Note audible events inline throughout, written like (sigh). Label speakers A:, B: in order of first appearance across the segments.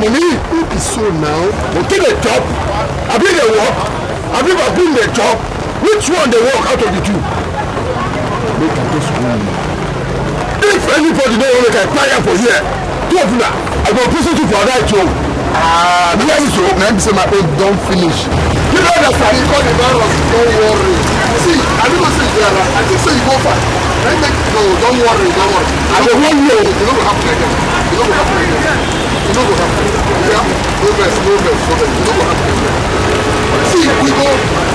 A: Mummy, who be so now? They take a job. I bring the work. I bring I bring the job. Which one they work out of the two? Make I just go. If anybody don't want to make a fire for here, two of them, I go prison you for that job. Ah, uh, yes, so. Now say my own don finish. You know that I call the virus. Don't worry. See, I don't say you are. I think say you go far. Let make no. Don't worry. Don't worry. I go warn you. You know what
B: happen again. You know what happen again e no go happen yeah no vex no vex no vex e no go happen see we go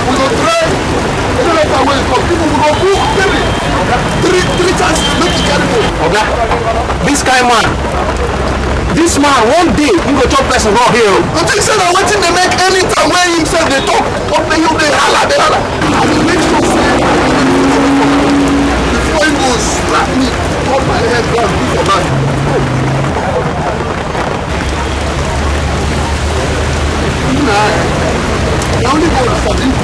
B: we go try any letter wey come
A: people will go book three three three chances make e carry go. oga dis kain man this man one day he go chop person raw here o. you think say waiting wetin dey
B: make any time wey him sef dey talk up dey you they holla, they holla. as e make sure say i before he goes slap me cut my head down do for that.
A: nada. Não onde você está dentro do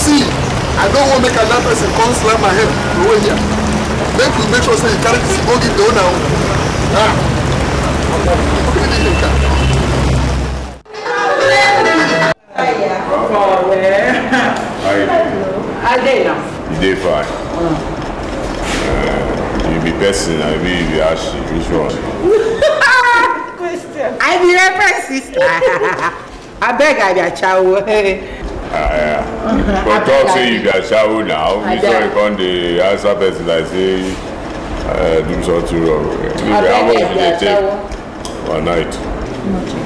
A: See, I don't want to make another person come slam my head over here. Make we make sure say you carry this bogey door now.
C: Ah. Okay,
D: dey fine uh, you be person i be you be ashi which one.
C: (laughs) question. i be reference sister abeg (laughs) i be (laughs) ah, Yeah. but talk say you
D: be achawo now you sure you come dey answer person like say uh, do something wrong. abeg i be take? one night.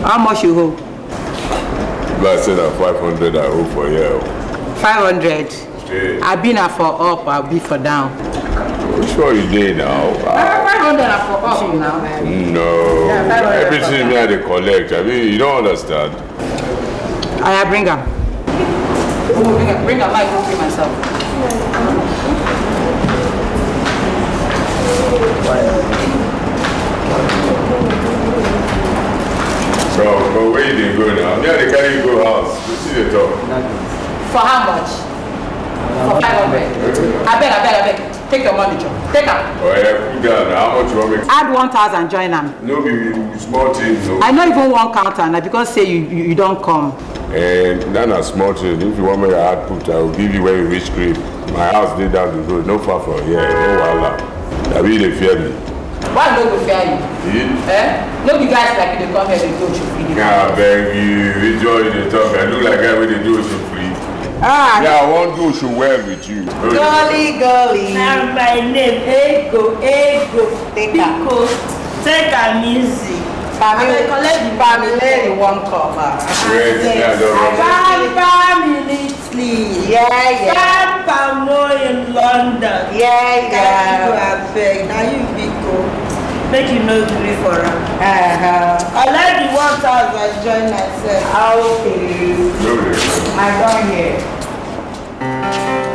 D: how much you owe. if i said na five hundred i owe for you.
C: five hundred. Hey. I been a for up, I'll be for down.
D: Which one you did now? Uh,
C: 500 for up now.
D: No. Yeah, Everything that they collect, I mean, you don't understand.
C: I bring her. Oh, bring her. bring her. I don't pay myself.
D: So, but where you did go now? Yeah, they carry you go house. You see the top.
C: For how much? for five I abeg I abeg take your money chop take am.
D: oye kuda na how much you wan make.
C: add one thousand join them.
D: no be small thing o. i
C: no even one counter. am because say you you, you don come.
D: And um, that a small thing if you want me, i add put i will give you when you reach crib my house is down the road no far from here no wahala I me dey fear me.
B: why
C: don't go fear
D: you. Yeah.
C: Eh? no be guys like you dey come here dey do
D: oshofri. abeg you which one you dey talk i look like I guy do it do free. Ah, yeah, I want to show well with you.
B: Golly,
C: golly. Now my name, Ego, Ego. Take Pico, take a music. Family, family, one cover. Ah. Great, yeah, don't worry. Bami Italy. Yeah, yeah. Bam Bamo in London. Yeah, yeah. Now you big. make you no gree for am. I like the one thousand I join myself.
B: Ah okay. I don here.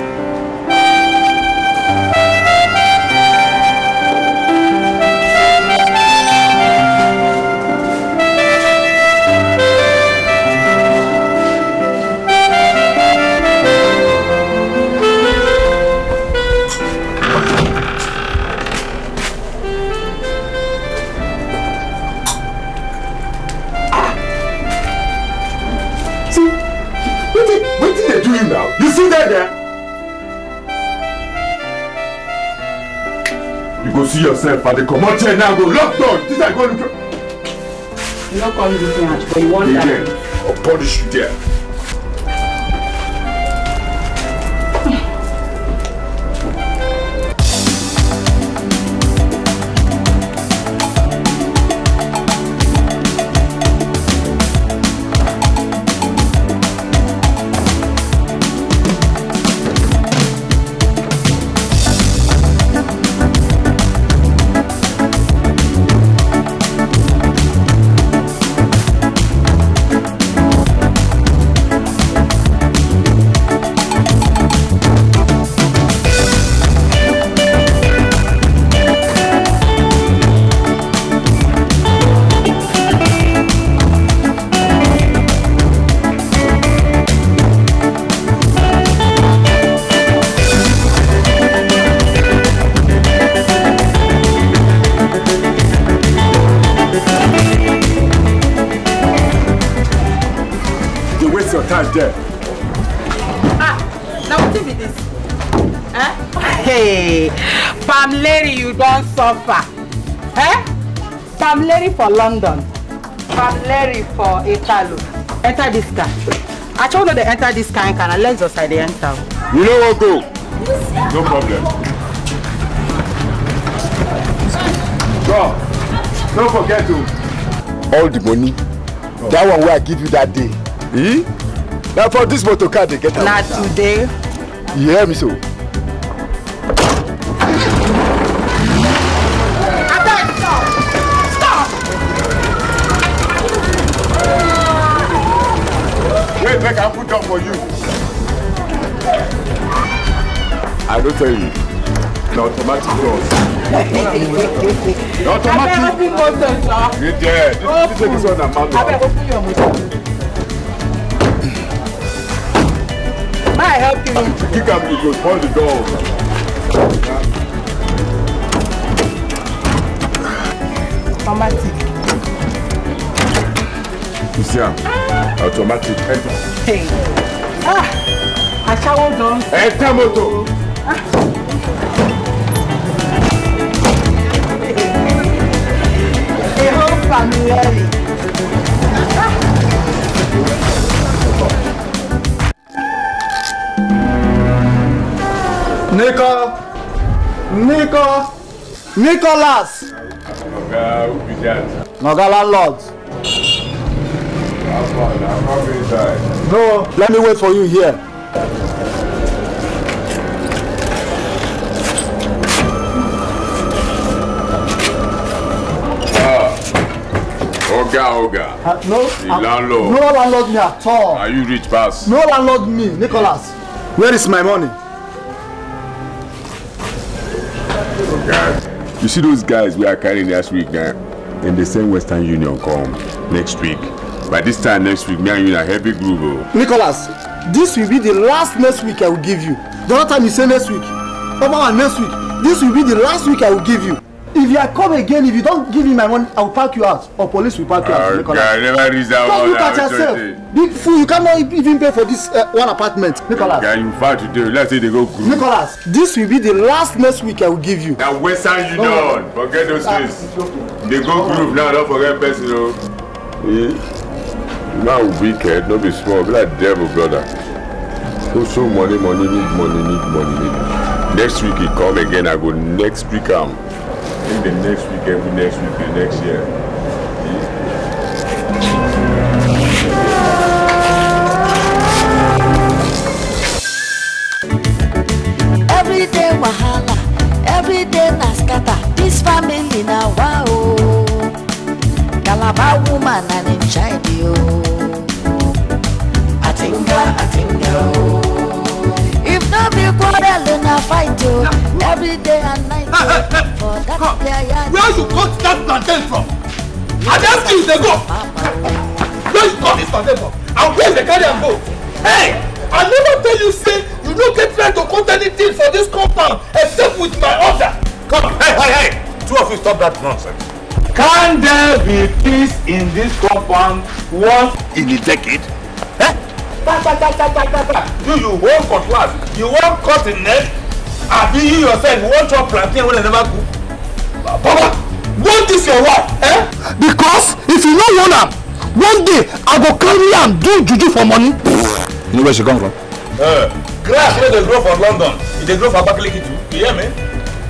A: dáadáa.
D: You go see yourself at the comot here
C: now go lock door this guy go look. You no come look me out but you wan die.
D: I'll punish you there.
C: lover. Eh? Larry for London. Larry for Italo. Enter this car. I told her to enter this car and can I let us I they enter.
B: You know what go?
D: No problem. Go. Don't forget to. All the money. Oh. That one where I give you that
A: day. Eh? Now for this motor car they get out. Not today. You hear me so?
D: no tell automatic doors. na automatic. doors, bí mo sọ this this this one na manual. abẹ́rẹ́ may I help you. kick am you go spoil the door.
C: automatic.
D: you see automatic enter.
C: Hey. ah aṣáwó dán. ẹ tẹ́ motor. Samuel.
A: Nico! Nico! Nicholas!
D: Ọ̀gá Ubijat.
A: Ọ̀gá landlord. No, let me wait for you here.
D: Oga, Oga. Uh, no, the uh, landlord. No landlord
A: me at all. Are you rich, pass? No landlord me, Nicholas. Where is my money?
D: Guys, you see those guys we are carrying last week man. Eh? And they send Western Union come next week. By this time next week, me and you in a heavy groove. Oh.
A: Nicholas, this will be the last next week I will give you. The other time you say next week. come on next week. This will be the last week I will give you if you are come again if you don give me my money i will park you out or police will park you out. oh god never reach that one now just look at yourself big fool you cannot e-, even pay for this uh, one apartment Nicolas. oga
D: you far today let's say they go groove. Nicolas. this will be the last next week i will give you. na western union no, no. forget those ah, things dey go groove now don forget person o. man wicked no be small be like devil brother so so money money need money need money need next week he come again i go next week am. Um, it next week, every next week, and next year.
C: Every day wahala, every day Naskata. This family na wow. Calabar woman and him child
B: Atinga, atinga.
C: Oh. If not be quarrel, na fight yo. Every day Where you got
A: that plantain from? And that thing dey go. Where you got this plantain from? And where dey carry am go? Hey! I never tell you say you no get right to cut anything for this compound except with my order. Come, hey, hey, hey! Two of you stop that nonsense. Can there be peace in this compound once in a decade? Eh? Ta, ta, ta, ta, ta, ta, ta. Do you want cutlass? You want cut the neck? Abi you yourself you want chop plantain when I never cook? Papa, want this your wife, eh? Because if you no want her, one day I go carry am do juju for money. You know where she come from? Uh, grass where they grow for London, e they grow for Abakaliki too. You hear me?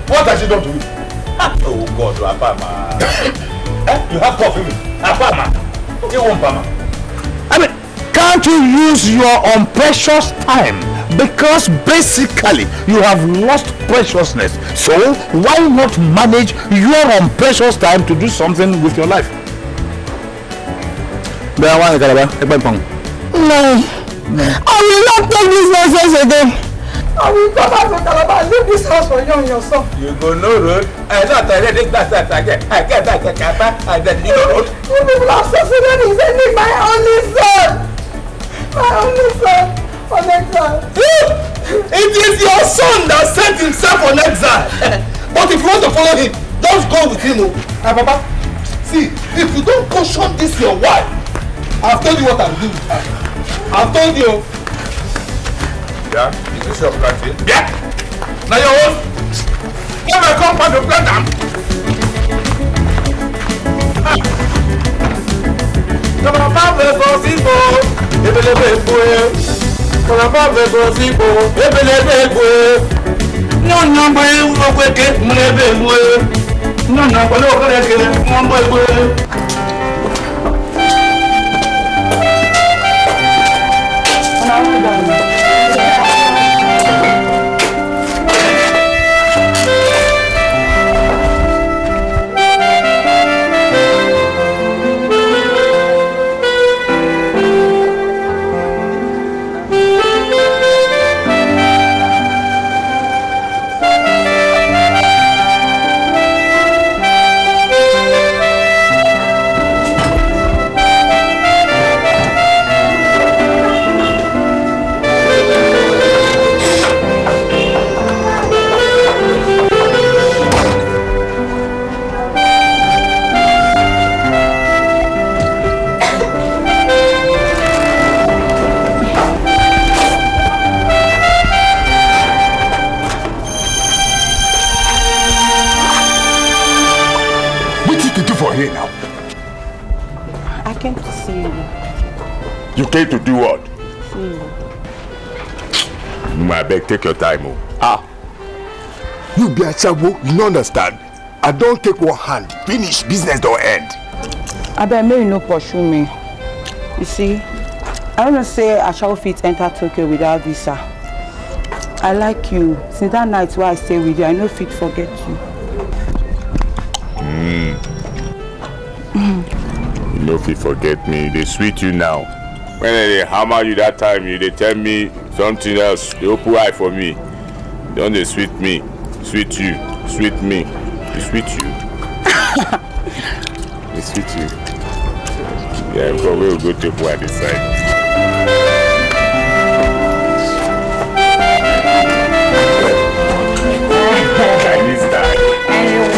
A: What has she done to you? oh God, Papa. (coughs) eh? You have coffee Papa. Apama. You won't Apama. I mean, can't you use your own precious time because basically you have lost preciousness. So why not manage your own precious time to do something with your life? Bẹ́ẹ̀ wá ní Kalaba, ẹgbẹ́ ìpamọ́.
B: No, no. I will not take this nonsense again.
A: I will go back to Calabar and leave this house for you and your son. You go no road. I know that I read it last time. I get I get back and then you no road. You will have succeeded in sending my only son.
C: My only son from
B: exile.
A: it is your son that sent himself on exile. (laughs) but if you want to follow him, just go with him. Ah, oh. Papa, see, if you don't caution this your wife, I've told you what I'm doing. I've told you.
D: Yeah, is this your planting? Yeah.
A: Now your own. Come and come and plant them. Come on, Papa, for people. Ebelebe, boy kọlọfọ gbẹgbọ sí ipò ebele ebe egbo nyɔnyɔ gbɛ wúlò gbɛ ké múlẹ̀ ebe egbo nyɔnyɔ gbɛ lọ́wọ́ kọ́lẹ̀ ké
C: mọ́
D: take your time o.
A: ah you be asawo you no understand i don take one hand finish
D: business don end.
C: abeg make you no pursue me you see i don't know say asawo fit enter tokyo without visa i like you since that night wey i stay with you i no fit forget you.
B: Mm.
D: Mm. you no fit forget me you dey sweet you now when i dey hammer you that time you dey tell me something else dey open eye for me don dey sweet me sweet you sweet me e sweet you
B: (laughs)
D: e sweet you yeah for we will go take one dey side.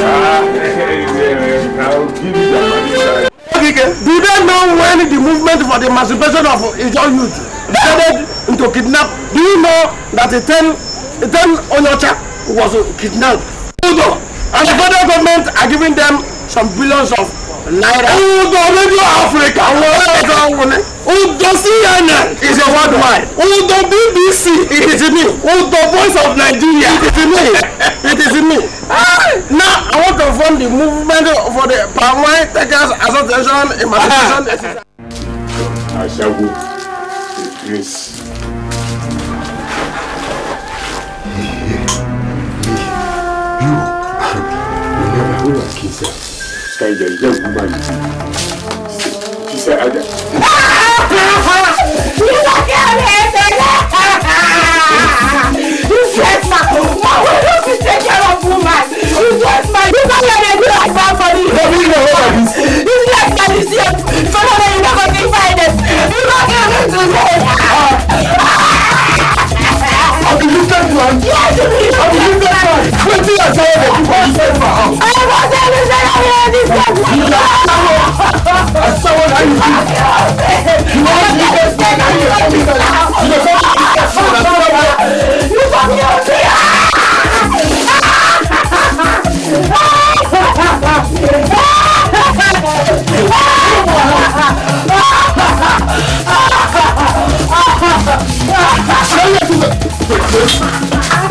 B: Ah,
A: (laughs) do they know when the movement for the emancipation of Ijaw youth started? to kidnap. Do you know that a 10, a 10 Onyocha was kidnapped? Udo! And the federal government are giving them some billions of naira. Udo Radio Africa! Udo CNN! Is a worldwide. Udo BBC! It is me. Udo Voice of Nigeria! It is me. It is me. Ah. Now I want to form the movement for the Palm Wine Takers Association Emancipation.
D: Ashago, the
B: prince. Kai da zan kuma ni.
D: Ki sai a da.
C: Ni ba ka ne da. You get my mama. Why don't you take care of woman? You get my. You don't let me do like that for you. No, we know what it is.
B: You get my decision. For now, you never get finance. You don't get me to say. I'll be looking for you. Yes, you will wetin your say dey do for you for house. ọ̀rọ̀ ṣe ní ṣe yà wíyà ní sẹ́kù. ìyá sáwọ́ àsáwọ́ náà yìí bí. ìwọ ní ìgbẹ́ sí ẹ̀ka ní ìwọ ní ìgbẹ́ sí ìwọ fẹ́ kí ìgbà sí ìwọ náà wà. ìwọ ní òsì yà. Thank you.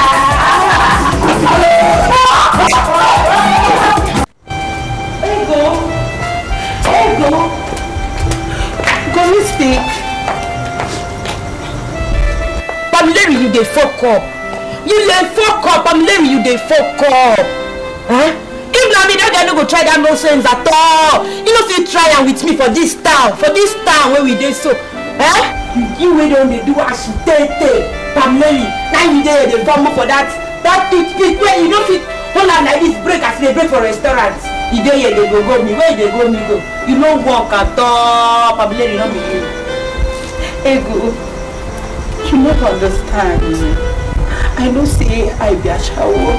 B: can you speak?
C: Pamilẹ́rì you dey fok up. You dey fok up Pamilẹ́rì you dey fok up. Eh? If na me dat guy no go try dat nonsense at all. He no fit try am with me for dis town for dis town wey we dey so.
B: Eh?
C: You wey don dey do asutete Pamilẹ́rì na you dey dey vomo for dat dat pit pit you no fit hold am like dis break as you dey break for restaurant the day you dey go go me where you dey go me go you no work at all pabilere no be you ego you no understand i know say i be ashawo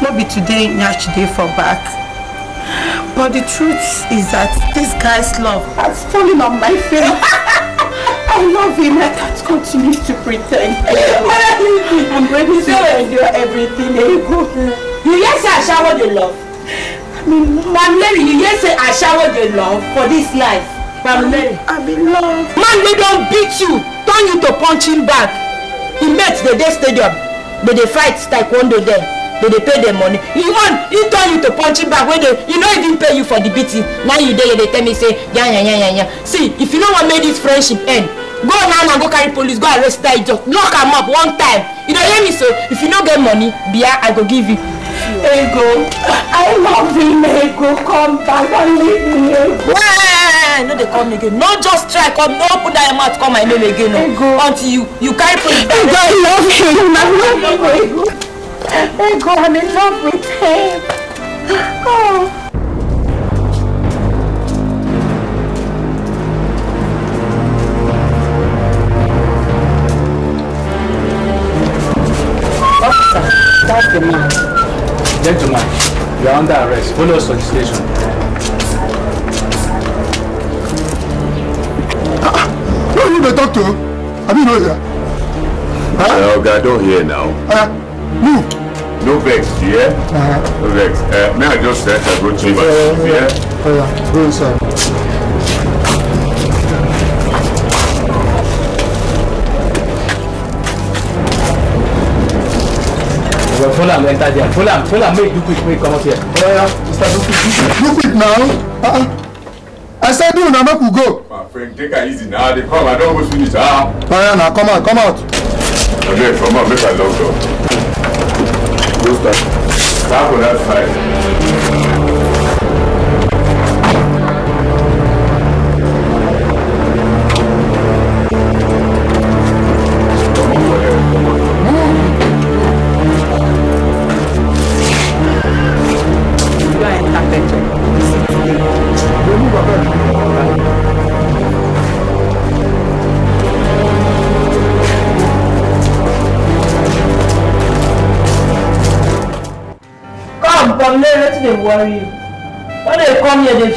C: no be today nyash dey for back but the truth is that this guy's love has fallen on my face. (laughs) I love him. I can't continue to pretend. (laughs) I'm ready to endure everything.
B: You
C: yes, I shower the love. Mamleri, you just say I showered your love for this life. Mamleri. I'm in love. Mamleri don't beat you, turn you to punching back. He met the day stadium. They dey fight taekwondo there. They dey pay their money. He won, he turn you to punching back when they, you no even pay you for the beating. Now you there, they tell me say, yeah, yeah, yeah, yeah, yeah. See, if you know what made this friendship end, go now and go carry police go arrest that idiot. Lock am up one time. You don't hear me so? If you don't get money, Bia, I go give you. Ego, I love him, Ego. Come back and leave me, Ego. Hey, no, they call me again. No, just try. Come, no, put that mouth. Call my name again. No. Ego. Until you, you can't put it Ego, I love him. I love him, Ego. Ego, I'm in love with him. Oh.
A: That's the man. Gentlemen, you are under arrest. Follow us to the station. Who are you dey talk to? I mean, no oh, here.
D: Huh? Uh, I don't hear now.
A: Uh,
B: move.
D: No vex, you hear? Uh -huh. No vex. Uh, may I just say I good chamber? Yeah,
B: yeah, yeah. yeah. Oh, yeah. Go inside.
A: well, Fulham enter there. Fulham, Fulham, make do quick, make come out here. Yeah, yeah. Mr. Do quick, do quick now. Uh-uh. I said do now, make we go. My
D: friend, take it easy now. They come, I don't go finish. Ah.
A: Fire now, come out, come out.
D: Okay, come out, make a long door. Go start. Stop one, that side.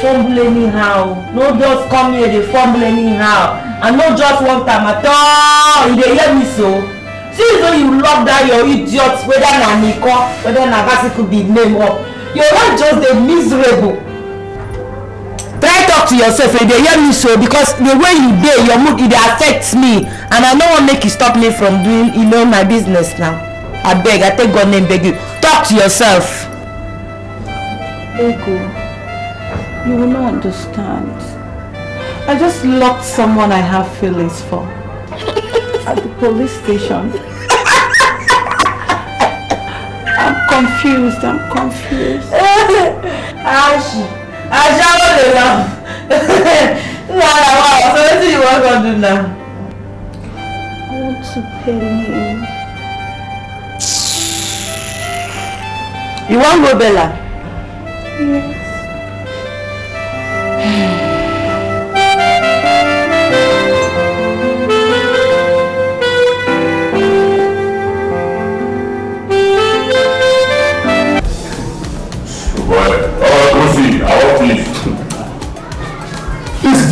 C: fumble anyhow no just come here dey fumble anyhow and no just one time at all you dey hear me so since though you lock down your idiot whether na niko whether na basiku be name up your life just dey miserable try talk to yourself you dey hear me so because the way you dey your mood e dey affect me and i no wan make you stop me from doing you know my business now abeg i take god name beg you talk to yourself.
B: Thank you.
C: You will not understand. I just locked someone I have feelings for (laughs) at the police station. (laughs) I'm confused, I'm confused. (laughs) Ashi, Ashi, I'm not enough. so what do you want to do now?
B: I want to pay him.
C: You want Robella?
B: Yeah.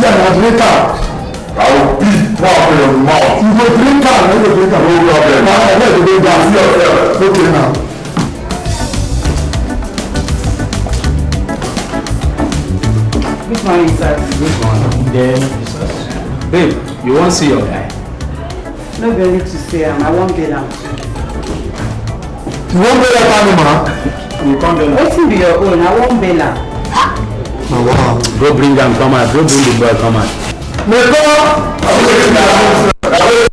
D: you are a drinker. I will
B: beat one of your mouth. You go drink am, you go drink am. No problem. Na I let you go down. See yourself. Okay now.
A: Which one is that? Which one? Then, babe, you won't see your guy?
C: No be to see am, I won't bail out. too. You wan bail out animal? You can't bail out. Wetin be your own? I won't bail out.
A: Oh, wow. Bro, bring them, come out. Go bring the boy, come out.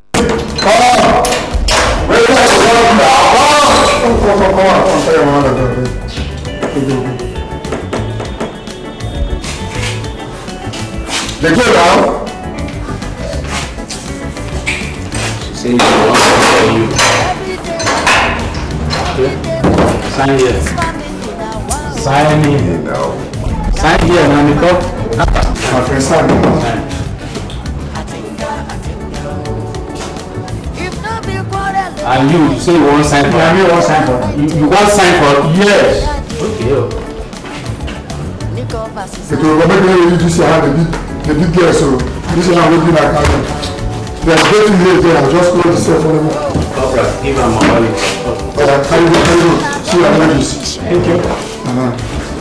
A: and you say you wan sign for. na me wan sign for. you, you wan sign for. yes. okay oh. o. ètò ìrọ̀lẹ́ bí wọ́n yóò dc àwọn ẹbí ẹbí díẹ̀ sọ̀rọ̀ níṣẹ́ náà wọ́n bí náà ká lọ. they are getting late there i just close the cell phone number. ọ̀rọ̀ give am my money. ọ̀rọ̀ carry go carry go see your ladies. thank you. Uh-huh.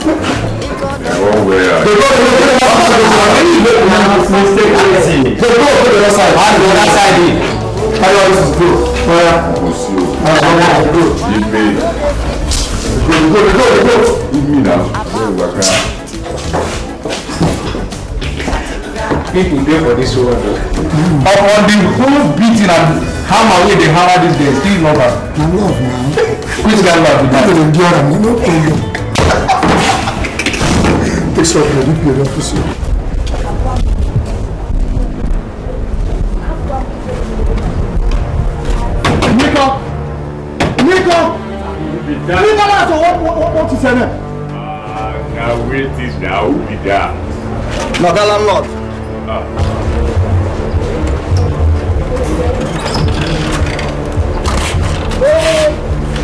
A: Mistake. They go to the other is On the other side. Carry on, this is good mo sí o email email na wọ́n wà ká. people dey for this world o. upon the whole beating and hammer wey dey hammer these days still love am. na love na. which kind love be that. no dey endure am no problem. take some credit pay don fit so. ṣiṣẹ́ náà.
D: àgàwé ti dà ó bì dà. bàbá landlord.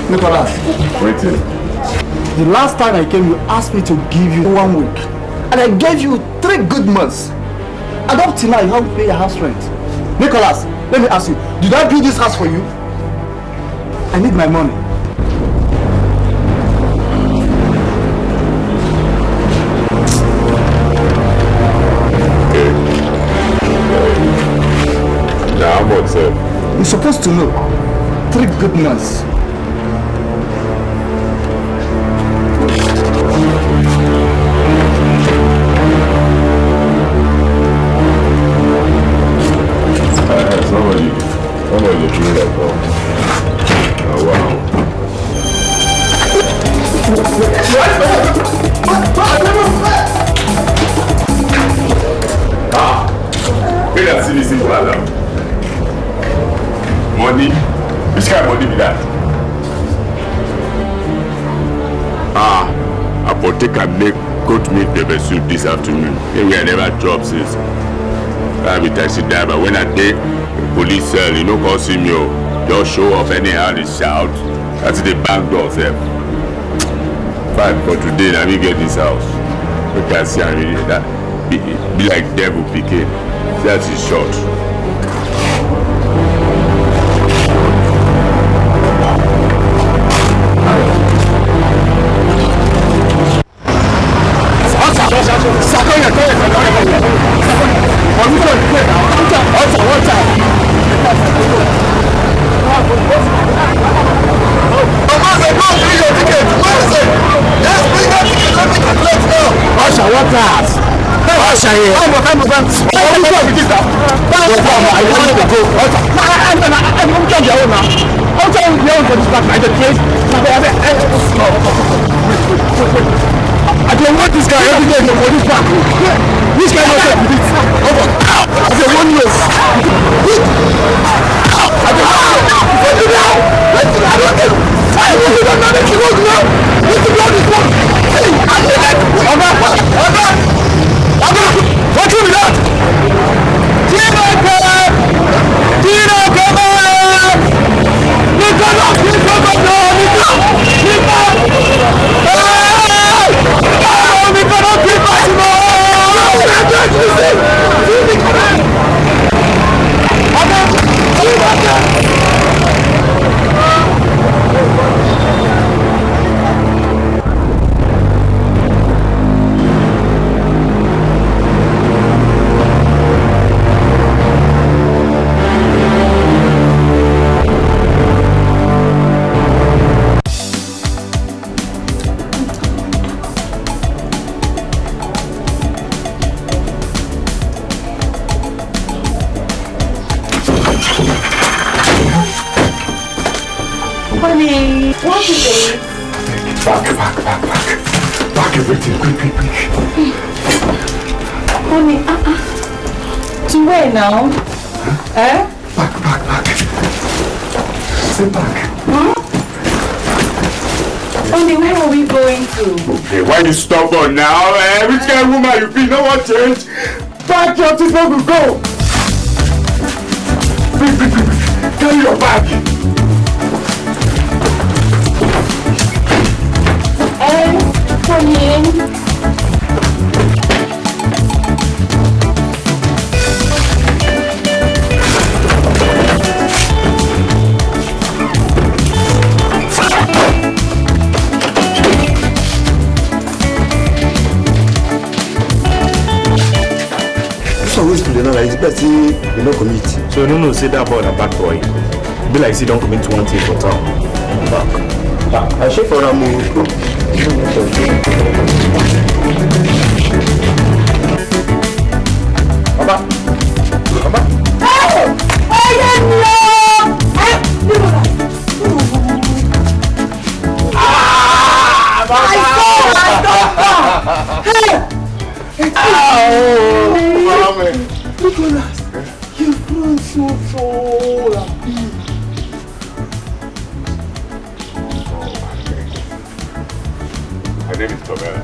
A: Nicholas. Waiting. The last time I came, you asked me to give you one week. And I gave you three good months. And up till now, you haven't paid your house rent. Nicholas, let me ask you, did I build this house for you? I need my money. report, sir? You're supposed to know. Three good months
D: maybe I never chop since. I be taxi driver. When I dey police cell, you no call see me o. Oh. Just show off anyhow dey shout. That's the bank door Sir, Fine for today Let me get this house. Make can see am really that be, be like devil picking. That is short. consent
A: say that boy na bad boy be like say don commit one thing town back
C: back i shey for am o.
B: baba baba. ọyẹ mi o ẹ mi ò rà. I saw my
C: doctor.
B: Hey! Ow! Nicholas.
A: Chuchura.
D: My name is Tobera.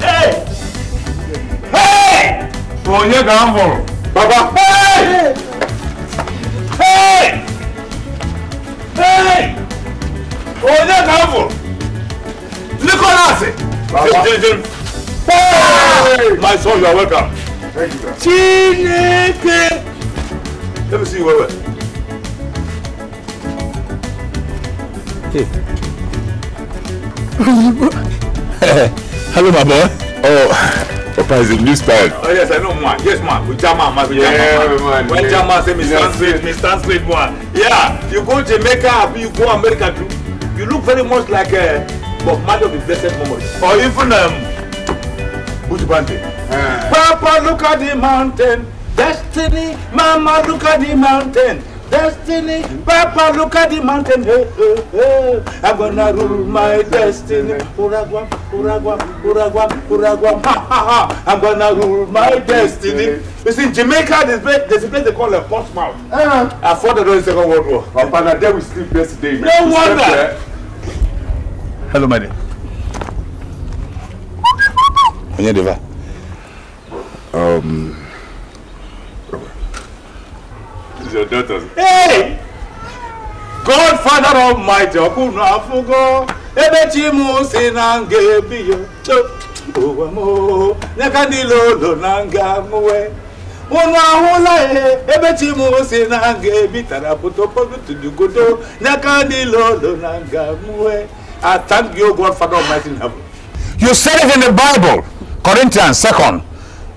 B: Hey! Hey!
D: Onye Gambo.
B: Baba. Hey! Hey! Hey!
A: Onye Gambo. Nicholas. Baba. Hey! My son, you are welcome. Chineke. Let me see you wewe.
D: Hey. (laughs) Hello, my boy. Oh. Papa is a new style. Oh yes, I know man. Yes man, we jam man, we jam man. Yeah, When jam man say me stand straight,
A: me stand straight Yeah, you go Jamaica, you go America too. You look very much like uh, Bob Marley of the Blessed Memory. Or even um, Buju Bandy. Papa, look at the mountain. Destiny, Mama, look at the mountain. Destiny, Papa, look at the mountain. Hey, hey, hey. I'm gonna rule my destiny. Uragwam, Uragwam, Uragwam, Uragwam. Ha ha ha! I'm gonna rule my destiny. You see, Jamaica, there's a place, they call a Portsmouth. Uh-huh. Ah. I fought the Second World War. Oh, Papa, now there we sleep yesterday. No we
B: wonder.
A: Hello, my dear.
D: Onyedeva. Um, it's your daughter's.
A: Hey! Godfather of ọkụnụ afụgo na nga ebi e, na nga
B: unu ahụla ihe
A: ebe chi na nga ebi tara pụtopọtudugodo nyaka niile ụlọ na nga I thank you, Godfather Almighty heaven. You said it in the Bible, Corinthians 2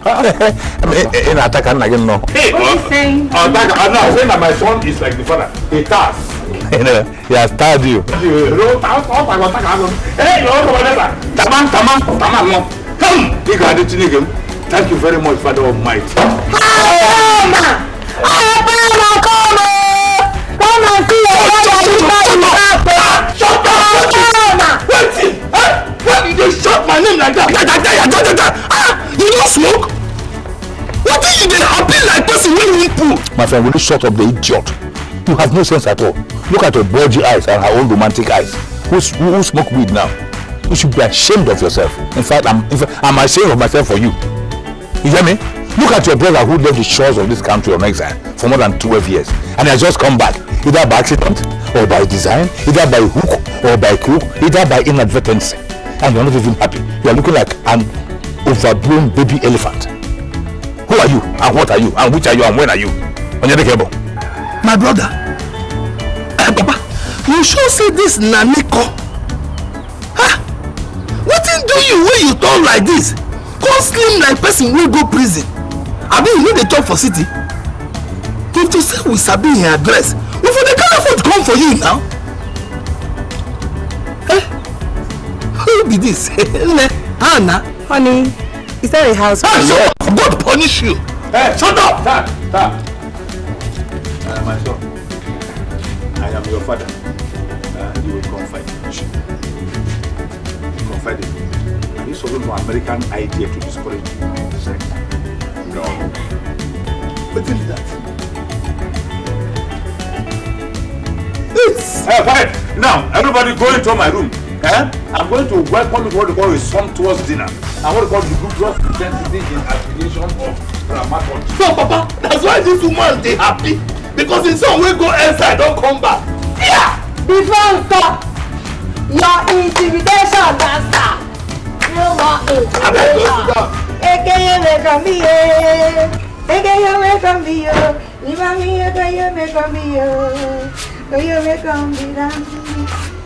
B: Eh,
A: eh, ina ataka nna gị nnọọ ya stard you know, uh, uh, he has Hey, you come ga-adị chineke m thank you very much father of might ah, Shut up! Wait! Eh? Why did you shout my name like that? Ah! you no smoke wetin
B: you dey happy like person wey need poo.
A: my friend will you shut up the idiot you have no sense at all look at your bulgy eyes and her own romantic eyes who who, who smoke weed now you should be ashamed of yourself in fact i'm in fact i'm ashamed of myself for you you hear me look at your brother who left the shores of this country on exile for more than twelve years and has just come back either by accident or by design either by hook or by crook either by inadvertence and you're not even happy You are looking like an overgrown baby elephant. Who are you? And what are you? And which are you? And when are you? Onyedekebo. My brother. Eh, Papa, you sure say this Naniko? Huh? Wetin do you when you turn like this? Come slim like person wey go prison. Abi you no dey chop for city? If to say we sabi him address, we for dey carry food come for you now. Eh? Who be this? (laughs) Nne, Hannah. Honey, is that a house? I'm going to punish you! Hey, shut up! Stop, stop. I am my son. I am your father. And uh, you will confide in me. Confide in me. Are you solving for American idea to discourage sex? No. But tell that. It's... Hey, quiet! Now, everybody go into my room. Eh? I'm going to welcome you to what we call a sumptuous dinner. And what to call the group glucose intensity in affiliation of Ramadan. So, Papa, that's why these two months they happy. Because in some way go inside, don't come back.
B: Yeah! The dancer! Your intimidation dancer! You are intimidation. Ekeye make a me, oh.
C: Ekeye make a me, Leave oh. me, Ekeye make a me,
B: Ekeye make a me,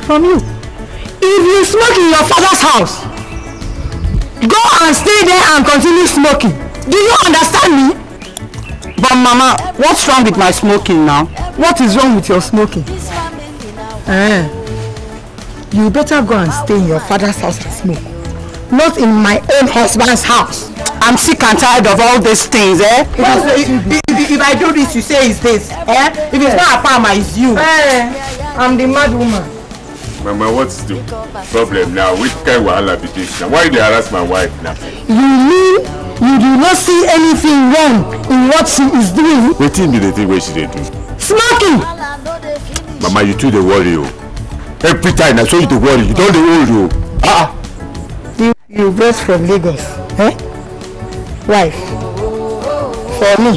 C: from you. If you smoke in your father's house, go and stay there and continue smoking. Do you understand me? But mama, what's wrong with my smoking now? What is wrong with your smoking? Eh, you better go and stay in your father's house and smoke. Not in my own husband's house. I'm sick and tired of all these things, eh? If, if, if, if I do this, you say it's this, eh? If it's not a farmer, it's you. Eh. I'm the mad woman.
D: Mama, what's the problem now? Which kind of wahala be this now? Why they harass my wife now?
B: You mean you do not see anything wrong in what she is doing? What
D: be the think wey she dey do? Smoking! Mama, you too they worry you. Every time I show you dey worry, you don't worry you.
B: Ah! You, you brought from Lagos, eh? Wife, for me,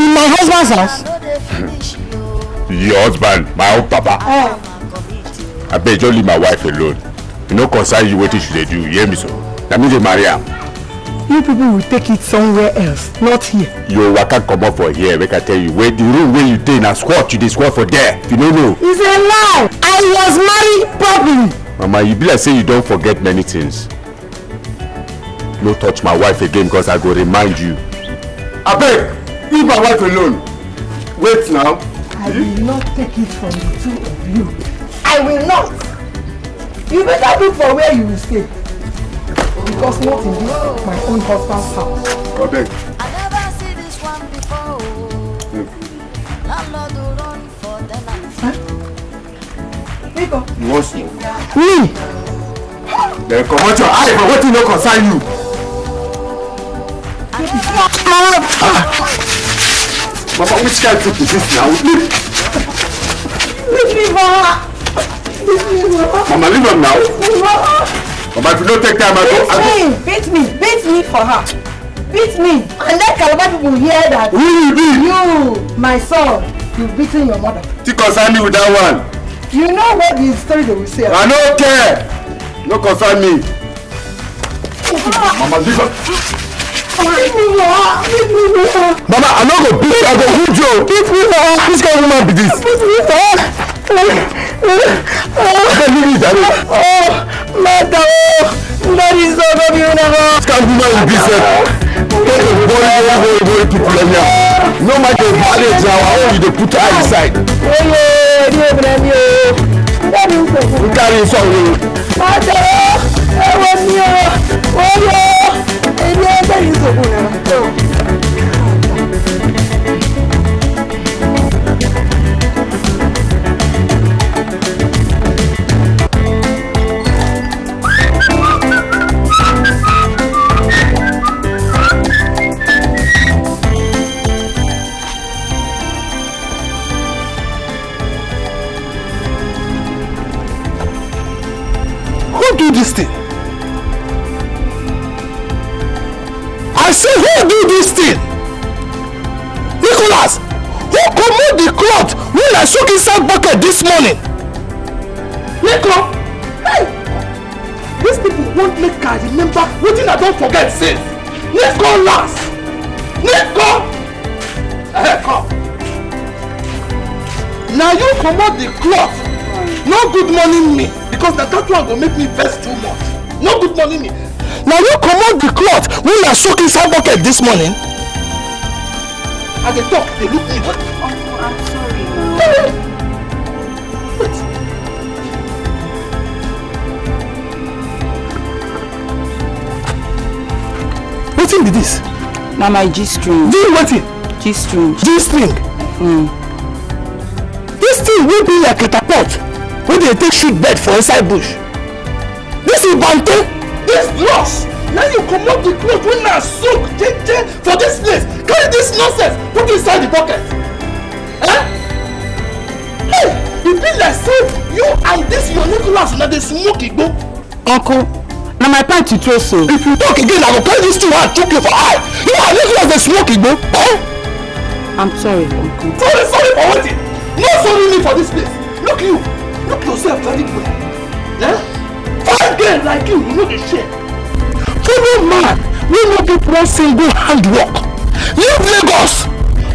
B: in my husband's house,
D: your husband my own papa oh, I beg, just leave my wife alone e no concern you wetin she dey do you hear me so na me dey marry am.
C: you people will take it somewhere else not here.
D: your waka comot for here make i tell you wey the room wey you dey na squat you dey squat for there you no know.
C: it's a lie i was married properly.
D: mama you be like say you don forget many things no touch my wife again because i go remind you abeg leave my wife alone wait now
B: I will not take it from the two of
A: you. I will not. You better look for where you will stay. Because not in this, my own husband's house.
D: I beg. I
B: What's you? Me?
D: Then come out your eye for what you know concern you.
B: I ah.
A: Papa, which kind of food is this now? Leave!
B: Leave me, Mama! Leave me, Mama! Mama, leave her now! Leave me, Mama!
A: Mama, if you don't take time, I don't... Beat
C: me! Beat me! Beat me for her! Beat me! And let Calabar people hear that! Who you beat? You, my son, you've beaten your mother.
A: Still concern me with that one.
C: You know what the story they will say. I don't
A: care! No concern me! Mama, leave her!
B: Mama, I no go beat you, I'm go hit you. Beat me for Which kind of woman be this? Beat me for I can't believe it. Oh, Mata, oh, that is so baby, you never. Which kind of woman is this? Get the boy, boy, boy, boy, people like that. No matter the marriage, now, I want you to put her inside. Oh, yeah, yeah, yeah, yeah. That is so. We carry it on. Mata, oh, I want you. Oh, yeah. days of winter.
A: don't forget sins. go last. Nico. Hey, come. Now you comot the cloth. No good money me because na that one go make me vest too much. No good money me. Now you comot the cloth wey are soaking inside bucket this morning. As they talk they look me.
B: Oh, I'm Sorry.
C: thing be this? Na my G-string. Do you want it? G-string. G-string? Mm. This thing will be like a catapult
A: wey dey take shoot bed for inside bush. This is bante. This loss. Now you come comot the clothes when I soak jeje for this place. Carry this nonsense put inside the pocket. Eh? Hey, e be like say you and this your Nicholas na dey smoke igbo. Uncle na my pint you so. if
C: you talk again i go carry this thing wey i chook you for eye you are living like a smoke igbo. Eh? i'm sorry uncle.
A: sorry sorry for wetin no sorry me for dis place look you look yourself very well eh? Five girls like you you no dey share. follow man wey no get one single hand work leave lagos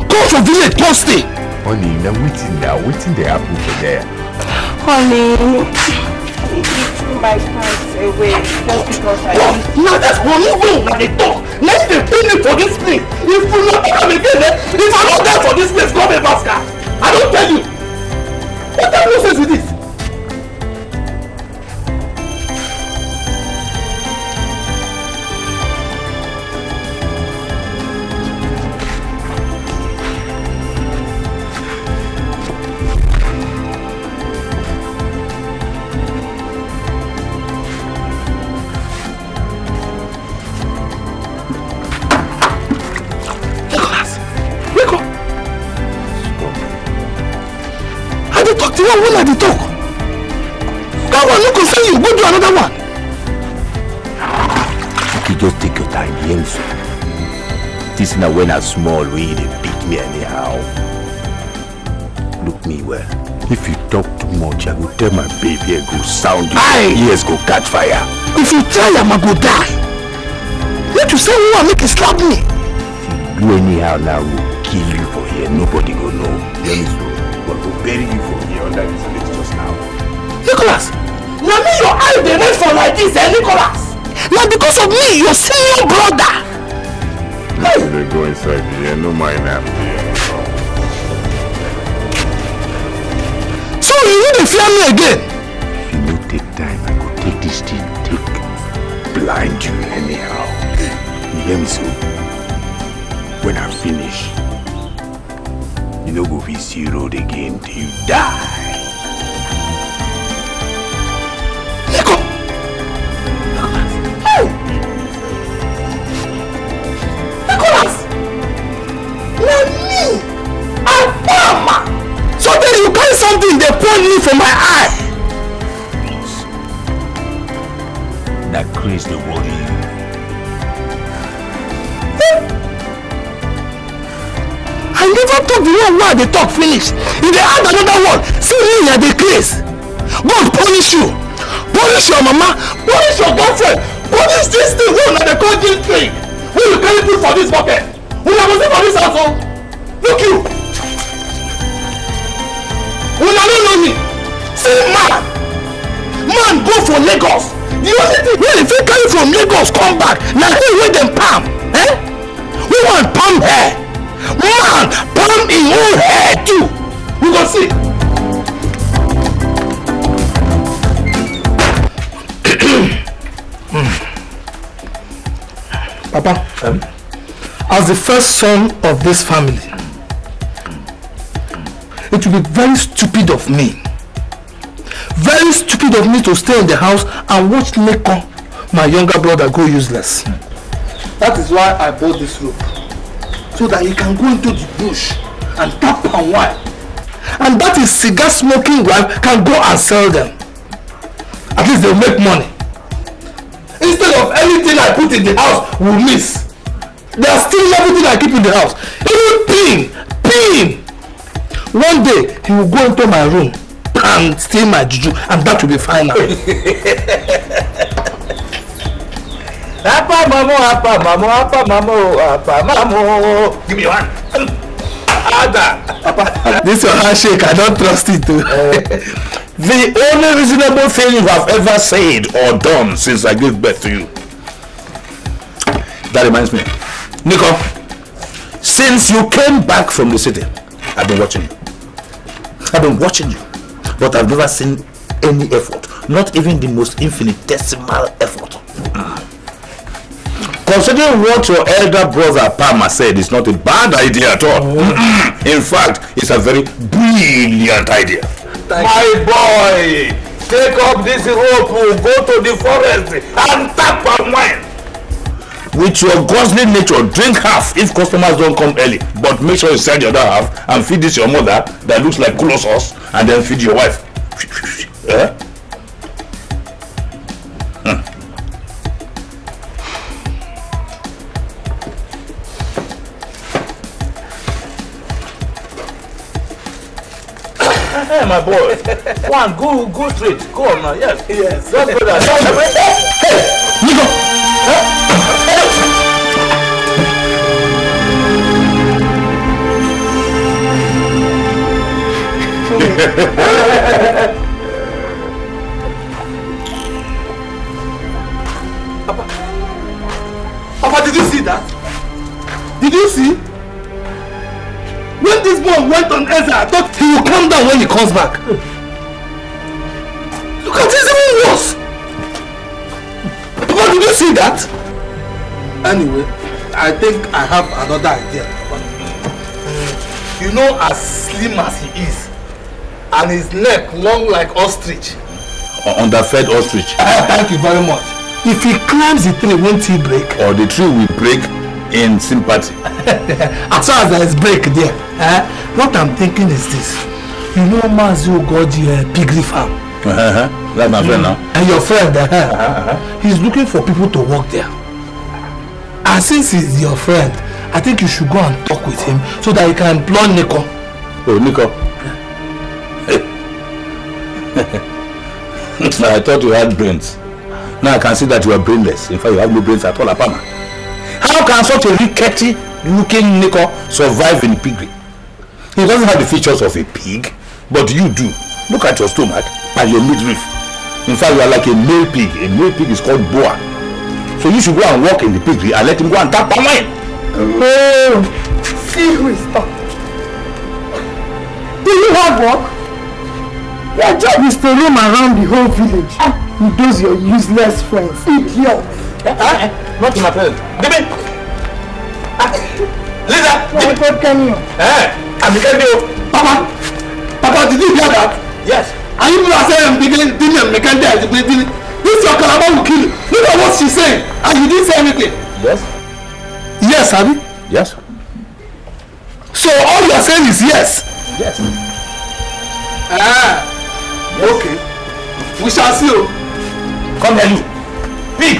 D: go for village
C: go stay. honey
D: na wetin na wetin dey happen for there.
C: honey my pants away just because I used to. Now
A: that's one even when they talk. Now they pay me for this thing. If you not come again, eh? If I'm not there for this place, go be master. I don't tell you. What the nonsense is this? one woman dey talk that one no concern you go do another one.
D: you just take your time hear this na when i small we you dey beat me
A: anyhow look me well if you talk too much i go
D: tell my baby i go sound you Aye. ears go catch fire.
B: if you try am i go die
A: What you say Who woman make you slap me.
D: if you do anyhow now i kill you for here nobody go know but to bury you from here under this village just now.
C: Nicholas! Na me your eyes dey wait for like this, eh, Nicholas? Na because of
B: me, your senior brother! Hey!
D: They go inside here, no mind am.
B: So you no dey fear me
A: again? If
D: you no take time, I go take this thing, take blind you anyhow. You hear me so? When I finish, You no go fit see road again till you die.
A: something They pain me from my eye.
D: That craze dey worry you.
A: I never talk the one word they talk finish. If they add another one, see me at the case. God punish you. Punish your mama. Punish your girlfriend. Punish this thing. Who are dey call this thing? Who you carry put for this bucket? Who na go see for this house oh? Look you. Una no know me. See man. Man go for Lagos. The only thing when if you carry from Lagos come back na him wey dem palm. Eh? We want palm hair.
B: Even he who heard you, we go see. (coughs)
A: Papa, um, as the first son of this family, it will be very stupid of me, very stupid of me to stay in the house and watch Lekon, my younger brother, go useless. That is why I bought this rope so that he can go into the bush and tap on wine. And that is cigar smoking wife can go and sell them. At least they'll make money. Instead of anything I put in the house will miss. are still everything I keep in the house. Even pin, pin. One day he will go into my room and steal my juju and that will be final. (laughs) Apa Mamu? apa Mamu? apa Mamu? apa Mamu? Give me one. Ada. This your handshake, I don't trust it. Eh. the only reasonable thing you have ever said or done since I gave birth to you. That reminds me. Nico, since you came back from the city, I've been watching you. I've been watching you, but I've never seen any effort, not even the most infinitesimal effort Considering what your elder brother Palmer said is not a bad idea at all. Oh. Mm-hmm. In fact, it's a very brilliant idea. Thank My you. boy, take up this rope, go to the forest and tap on wine. With your ghostly nature, drink half if customers don't come early. But make sure you sell the other half and feed this your mother that looks like culo sauce and then feed your wife.
B: (laughs) eh? mm.
A: my boy. One, go, go straight. Go on now. Yes. Yes. Yes, brother. Hey, Nico. Papa, Papa, did you see that? Did you see? When this boy went on Ezra, I thought calm down when he comes back. Look at this even worse. Papa, did you see that? Anyway, I think I have another idea. You know, as slim as he is, and his neck long like ostrich.
D: Underfed ostrich. (laughs)
A: Thank you very much. If he climbs the tree, won't he break? Or the tree will break in sympathy. (laughs) as far as there is break there, eh? what I'm thinking is this you know Mazi Ogoji uh, piggy farm.
B: Uh-huh. That's my friend now.
A: And your friend, uh, uh-huh. uh -huh. Uh-huh. he's looking for people to work there. And since he's your friend, I think you should go and talk with him so that he can employ Nico. Oh, Nico. (laughs) I thought you had brains. Now I can see that you are brainless. In fact, you have no brains at all, Apama. How can such a rickety looking Nico survive in piggery? He doesn't have the features of a pig. But you do. Look at your stomach and your midriff. In fact, you are like a male pig. A male pig is called boa. So you should go and walk in the piggery and let him go and tap on mine. Oh, see who is talking.
C: Do you have work? Your job is to roam around the whole village ah. with those your useless friends. Idiot. Uh, uh,
A: not to my parents. Debe! Uh, Lisa! My God, can you? Eh? I'm the oh. Papa! Papa, did you hear that? Yes. And even as I am beginning, Dini and Mekanda is beginning, this your kalaba will kill you. Look at what she's saying, and you didn't say anything. Yes. Yes, Abi? Yes. So all you are saying is yes? Yes. Ah. Yes. Okay. We shall see you. Oh. Come here, you. Pig!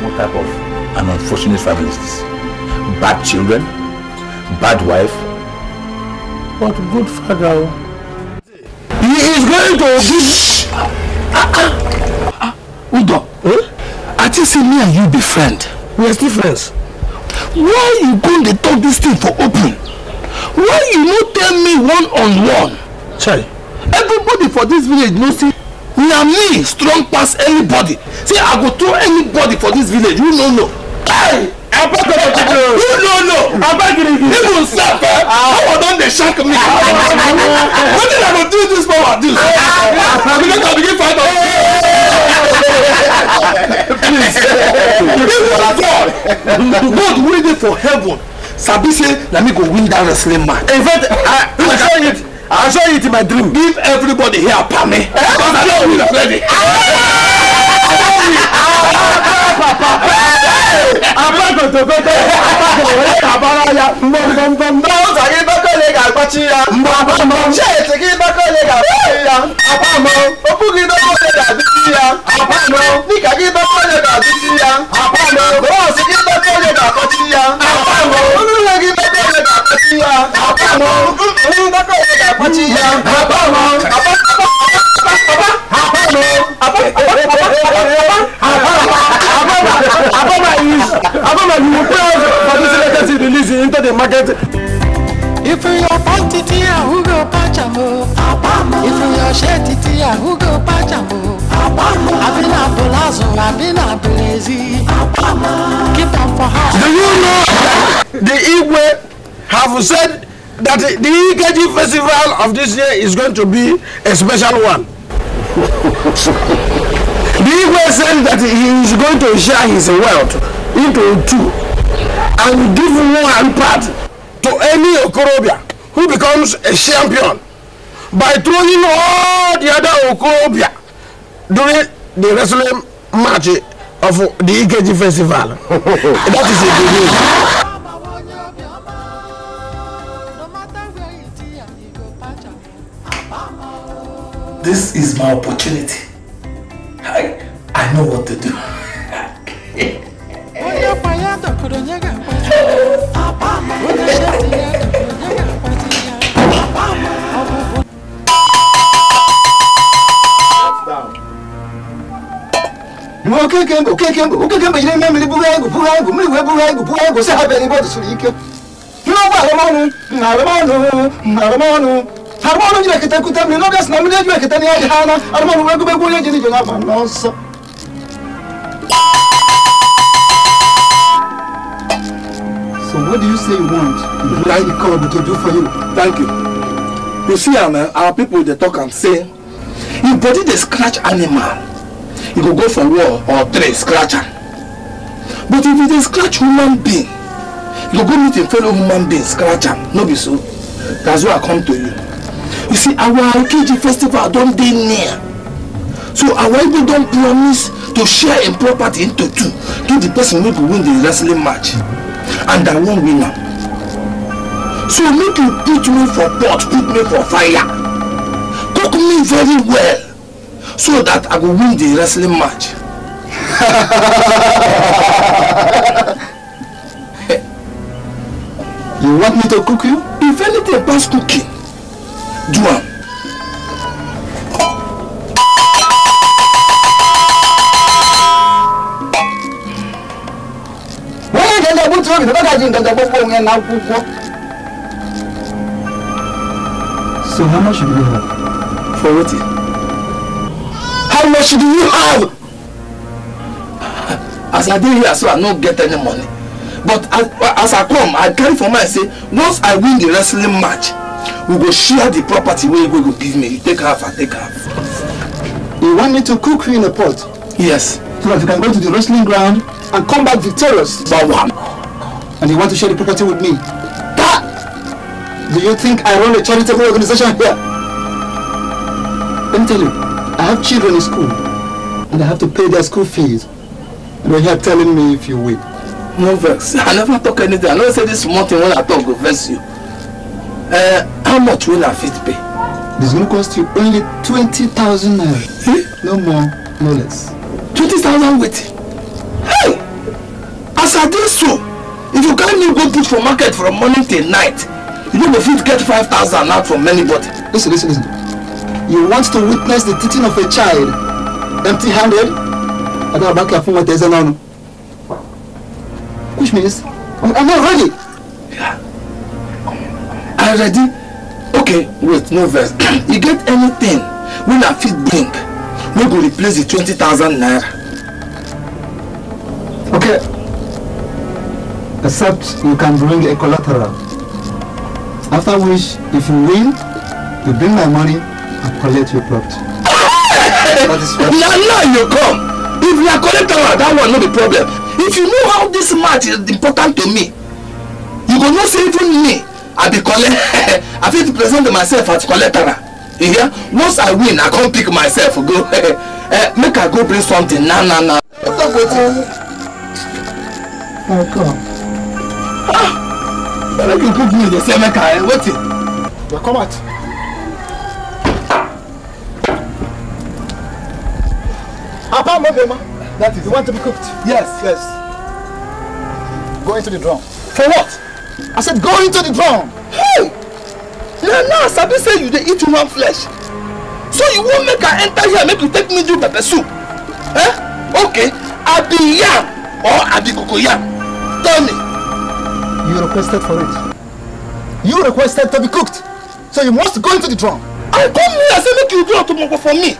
A: What type of an unfortunate family is this? Bad children? bad wife but good father oh. he is going to Shh. Udo eh? I just see me and you be friends. we are still friends. why you going to talk this thing for open why you not tell me one on one. chai everybody for this village knows know say na me strong pass anybody See, i go throw anybody for this village you no know. Hey! apákòtò tuntun. no no no abagirigi. even sef eh power don dey shock me.
B: wetin i go do dis power do. because i begin find out. please even
A: god god wey dey for heaven sabi say na me go win dat wrestling match. in fact i i saw it i saw it in my dream. give everybody here pami.
B: because i don win already. i
A: papa agbagotokoko agbagotokoko kabara ya mbọmbọmbọ. n'ụzọ gị bakole ga-agbachi ya. mbọmbọmbọ. sheeti gị bakole ga-agbachi ya. apamọ. okwu gị bakole ga-adịchi
B: ya. apamọ. dịka gị bakole ga-adịchi ya. apamọ. bọọsụ gị bakole ga-akọchi ya. apamọ. ụlọ gị bakole ga-akọchi ya. apamọ. ụlọ bakole ga-akọchi ya. apamọ. apamọ. apamọ. apamọ. apamọ. apamọ. Aboma is Aboma
A: you will pay for this latest release into the market.
C: If you are quantity, who go patch am o? Abama. If you are shetty, who go patch am o? Abama. Abina Bolazo, Abina Belezi. Keep am for
A: house. Do you know that the Igwe have said that the EKG festival of this year is going to be a special one? (laughs) The Igwe said that he is going to share his wealth into two and give one part to any Okorobia who becomes a champion by throwing all the other Okorobia during the wrestling match of the EKG festival. (laughs) that is a good news. This is my opportunity. I know what to do.
C: Onye akwa ya onye ga-akpati onye ga-akpati bụ
A: okeke si ọ dịsiri ike n'ụgbọ arụmọnụ na arụmọnụ na arụmọnụ arụmọnụ jiri na
B: mmiri
A: what do you say you want? Mm-hmm. Like the God to do for you. Thank you. You see, am, our people they talk and say, if body they scratch animal, you e go go for war or tree scratch But if you e dey scratch human being, you go go meet a fellow human being scratch am. No be so. That's why I come to you. You see, our Okeji festival don't dey near. So our people don't promise to share im property into two give the person wey go win the wrestling match. Mm -hmm and I won't win am. So make you put me for pot, put me for fire. Cook me very well so that I go win the wrestling match. (laughs) you want me to cook you? If anything pass cooking, do am. nga buti obi bakaji nga gbogbo onwe na akwụkwọ so how much do you have for wetin how much do you have as i dey here so i no get any money but as, as i come i carry for mind say once i win the wrestling match we go share the property wey you go give me you take half i take half. you want me to cook you in a pot. yes so that you can go to the wrestling ground and come back victorious by one. And you want to share the property with me. That, do you think I run a charitable organization here? Let me tell you, I have children in school and I have to pay their school fees. And you're here telling me if you will. No vex. I never talk anything. I never say this morning when I talk will vex you. Uh, how much will I fit pay? This will cost you only 20,000 naira. Eh? no more, no less twenty thousand weight. Hey! As I did so, if you can't new go put for market from morning till night, you no go fit get five thousand out from anybody. Listen, listen, listen. You want to witness the teaching of a child empty-handed? I don't back here for my with now. Which means I'm not ready. Yeah. I'm ready. Okay, wait, no verse. (clears throat) you get anything when I feel drink. We we replace the twenty thousand naira okay except you can bring a collateral after which if you win you bring my money and collect your property. na now you come if are collateral that one not be problem if you know how this match is important to me you go not say even me i be collect (laughs) i to present myself as collateral you hear once i win i come pick myself go uh, (laughs) make i go bring something na na na. stop wetin. my god. ah na make you cook me dey say make i wetin. na come out. apam obema that is you want to be cooked. yes yes. go into the drum. for what. i said go into the drum. Hey! na now sabi say you dey eat human flesh so you won't make her enter here make you take me do pepper soup eh okay be yam or abi cocoyam tell me. you requested for it you requested to be cooked so you must go into the drum. i come here say make you do otomoko for me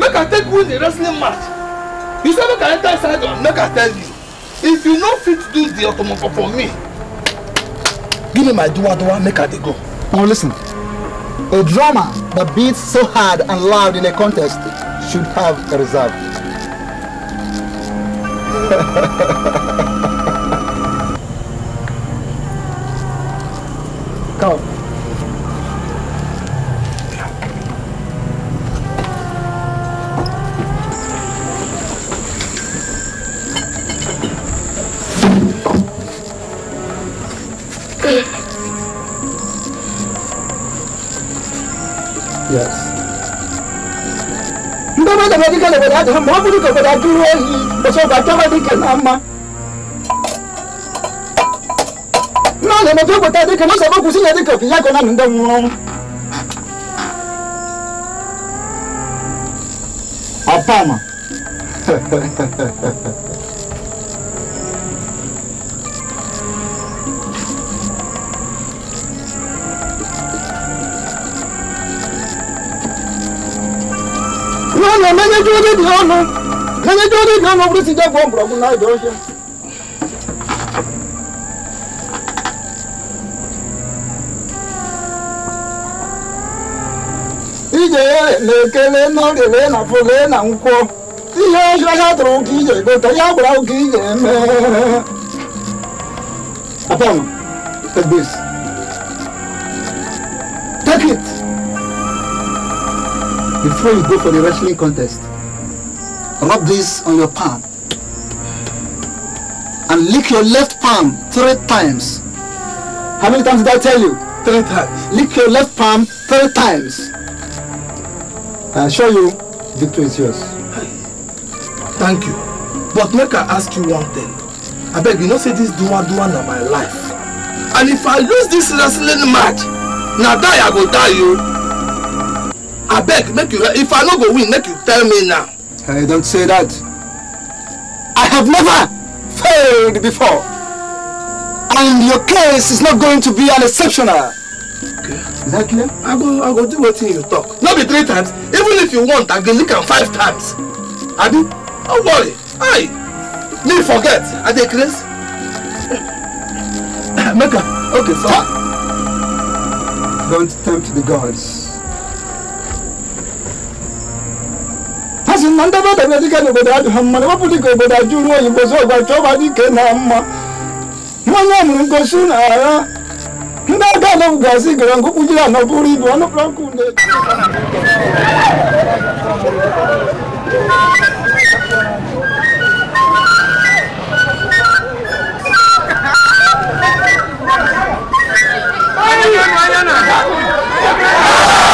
A: make her take win the wrestling match you say make her enter inside make her tell you if you no fit do the otomoko for me give me my duwa duwa make her dey go. Now listen, a drummer that beats so hard and loud in a contest should have a reserve. (laughs) gbọdọ̀ dá muhammadu kò gbọdọ̀ dúró yìí òṣogbo àjọmọdé kì máa ma. náà lè mọ tó gbọdọ̀ dé kan náà sọ sílẹ̀ dé kan fìyà kan náà nù wọn.
B: ọ̀pá àmà. (laughs) jodi di
A: ono kene jodi di ono brisi jago mbrogu na joje ije lekele nọrịrị na fole na nkwọ ihe ọhịa ha tụrụ ụka ije gote ya gbara ụka ije mee apam take this take it before you go for the wrestling contest Rub this on your palm. And lick your left palm three times. How many times did I tell you? Three times. Lick your left palm three times. I assure you, victory is yours. Thank you. But make I ask you one thing. I beg you, not say this dua dua na my life. And if I lose this wrestling match, na die I go die you. Oh. I beg, make you, if I no go win, make you tell me now. Hey, don't say that. I have never failed before. And your case is not going to be an exceptional. Okay. Is that clear? I go, I go do what you talk. Not be three times. Even if you want, I can look at five times. I do. Don't worry. Aye. Me forget. Are they (coughs) Make Mecca. Okay, so Don't tempt the
B: gods.
C: si na ndị bada
A: na dike n'obodo adị ha mma na wepụta ka obodo ajụrụ oyibo zo ọgwa chọba dike na mma mmanya mụrụ ngosi na ara ndị aga anọbụgasị gara nkụ kpụjiri anọ bụrụ ibu ọnụpụrụ nkụ na-eji
B: Oh,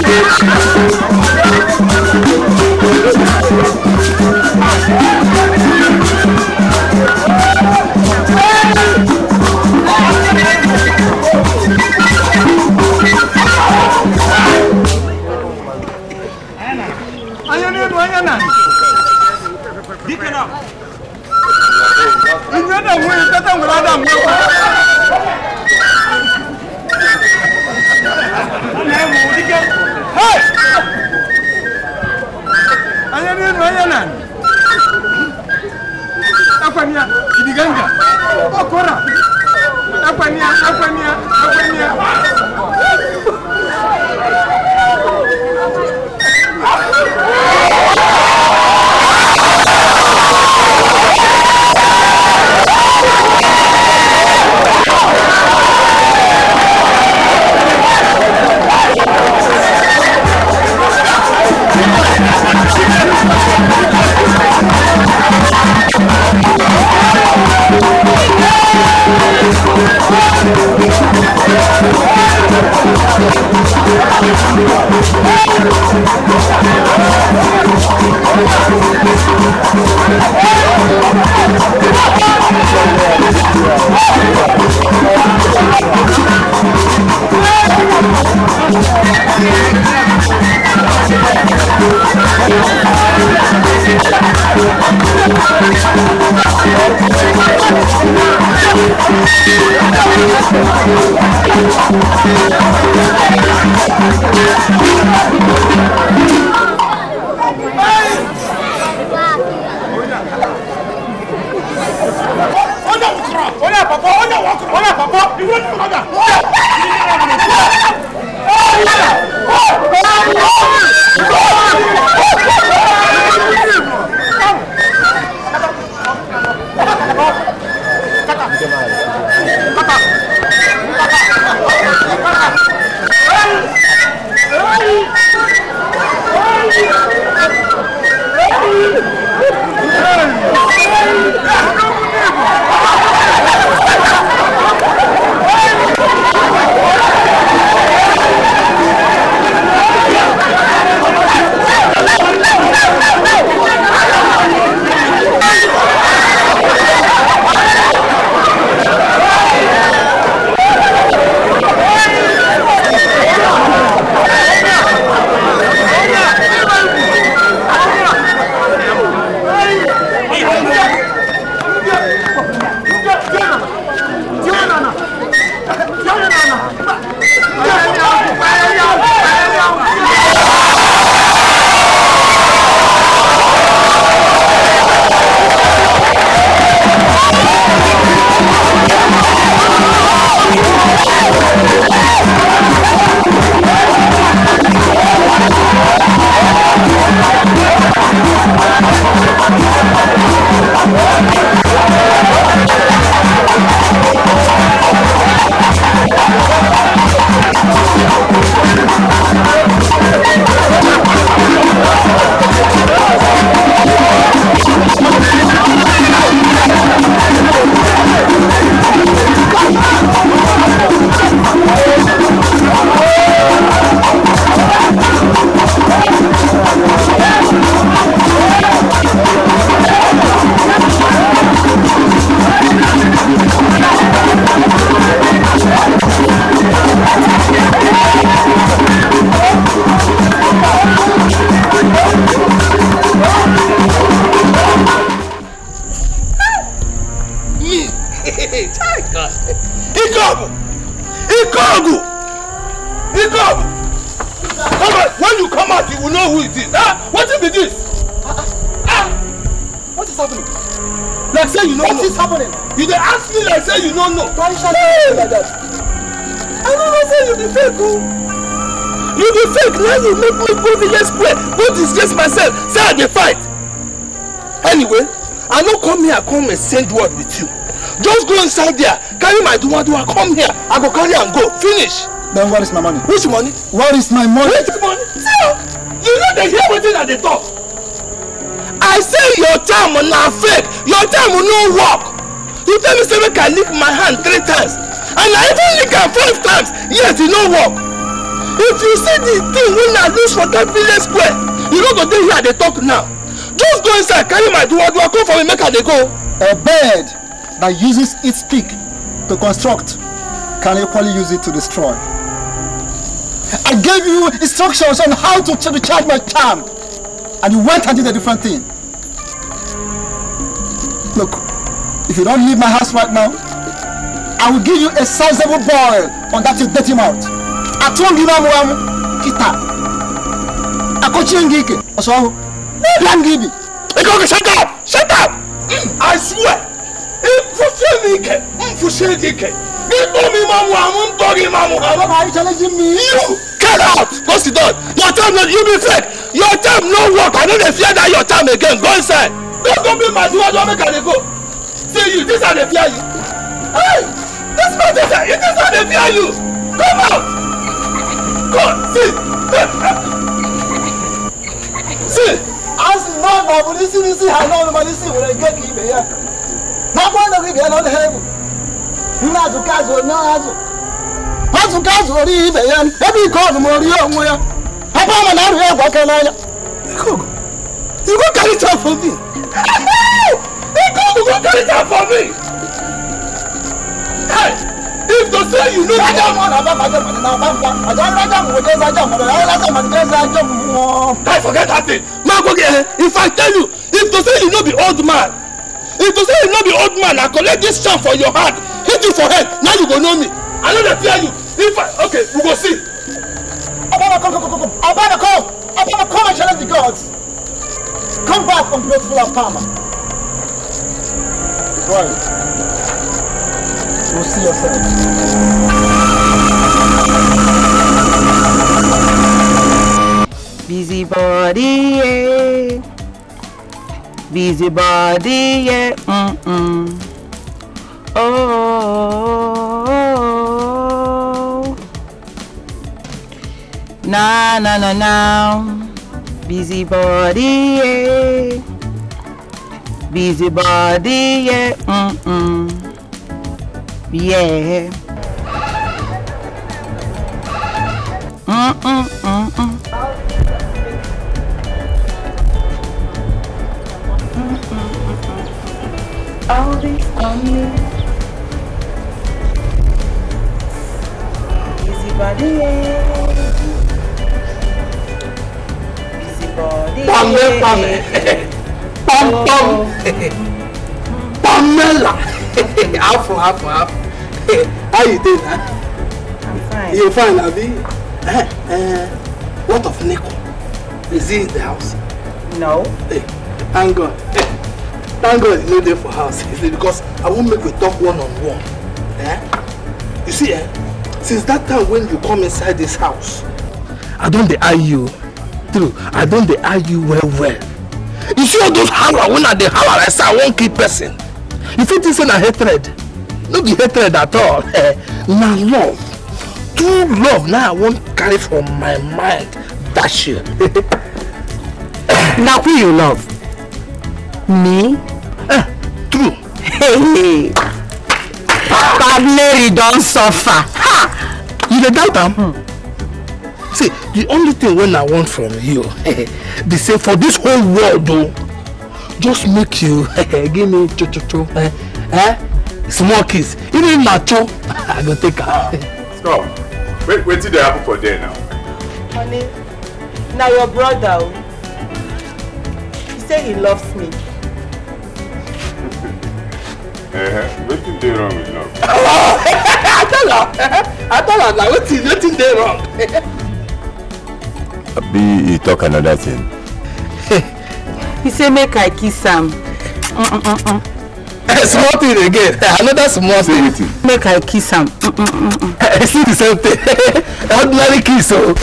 B: Thank you.
A: go village square go disgrace myself say i dey fight anyway i no come here come exchange word with you just go inside there carry my duwaduwa come here i go carry am go finish. then where is my money. which money. where is my money. which money. see you no dey hear wetin i dey talk. i say your charm na fake your charm no work you tell me say make i lick my hand three times and i even lick am five times yet e no work if you see the thing wey i lose for that village square you don't go dey here They talk now just go inside carry my duwadua come for me make i dey go. a bird that uses its beak to construct can equally use it to destroy. I gave you instructions on how to ch recharge my charm, and you went and did a different thing. Look, if you don't leave my house right now, I will give you a sizable boil on that you dirty mouth atụghị n'ọmụ ọmụ kịta akọchie gị ike ọsọ ọhụ n'ebe m gị bi shut up shut up I swear ịfụsie m ike mfụsie gị ike m ime ọmụ ọmụ m tọghị ime ọmụ ọmụ ma anyị chọrọ you get out go sit down your time no you be your time no work I no dey fear that your time again go inside don't go be my duwa don make I go see you this I dey fear you hey this man dey fear this I dey fear you come on. God, see! see! As long as I'm listening, see how long I'm listening when I get to here. Not one of you on heaven. Not to catch one, not to. Not to catch one, even. Every God, more young, where. Papa, I'm not here, what can I? Cook, you go carry it out for me. you go carry it out for me. Hey! live to say you know. rájà mọ̀ náà bá rájà mọ̀ náà bá pa àjọ rájà mọ̀ wọ́n rájà mọ̀ náà rájà mọ̀ náà rájà mọ̀ I forget that thing. Máa gbógi ẹ̀ if I tell you if to say you no be old man if to say you no be old man I collect this charm for your hand hit you for head now you go know me. I no dey fear you if I okay we go see. Abana come come come come Abana come Abana come and challenge the gods. Come back ungrateful and palmer. Right. yourselves. We'll see yourselves.
C: Busybody, yeah. Busybody, yeah. Mm-mm. Oh, oh, oh. Na, na, na, na. Busybody, yeah. Busybody, yeah. Mm-mm. Yeah. Mm
B: -mm -mm -mm. All this on me.
C: Busy body,
B: Busy body.
C: Pamela. Pamela. (laughs) half for half for half. (laughs)
A: How you doing? Huh? I'm fine. You're fine, Abi? Uh, uh, what of Nico? Is he in the house? No. Hey, eh, thank God. Hey, thank God he's not there for house. Is it because I won't make we talk one on one.
B: Eh?
A: You see, eh? Since that time when you come inside this house, I don't deny you. True, I don't deny you well well. You see all those hammer when I dey hammer, I say I won't kill person you fit think say na hatred no be hatred at all (laughs) na love true love na i wan carry from my mind
C: dash you (laughs) na who you love me eh true hey (laughs) Mary don suffer ha you dey doubt am hmm. see the only thing
A: wey i want from you be say for this whole world o. Oh, just make you (laughs) eh, give me cho cho cho eh, eh small kiss even if na cho (laughs)
D: i go take am. Ah, wait wetin dey happen for there now.
C: honey na your brother o he say he loves me. (laughs)
D: Eh, wetin dey wrong with love.
C: i tell her. i tell am na wetin wetin dey wrong.
D: abi e talk another thing
C: he say make i kiss am
B: mm, mm, mm,
C: (laughs) eh, small thing again eh, another small thing make i kiss am
A: (laughs) eh, see the same thing (laughs) ordinary kiss o oh.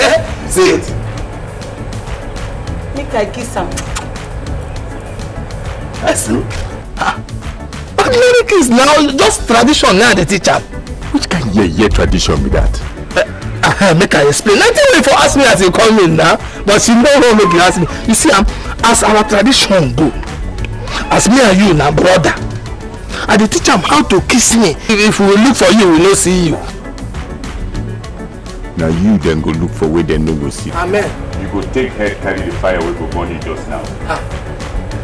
A: see it
C: make i kiss am
A: see ah, ordinary kiss now just tradition now dey teach am
D: which kind yeye tradition be that
A: uh, make i explain nothing wey for ask me as you come in now but she know how make you ask me you see I'm as our tradition go as me and you na brother i dey teach am how to kiss me if we look for you we no
D: see you na you dem go look for wey dem no go see amen you go take head carry the fire wey go burn you just now ah.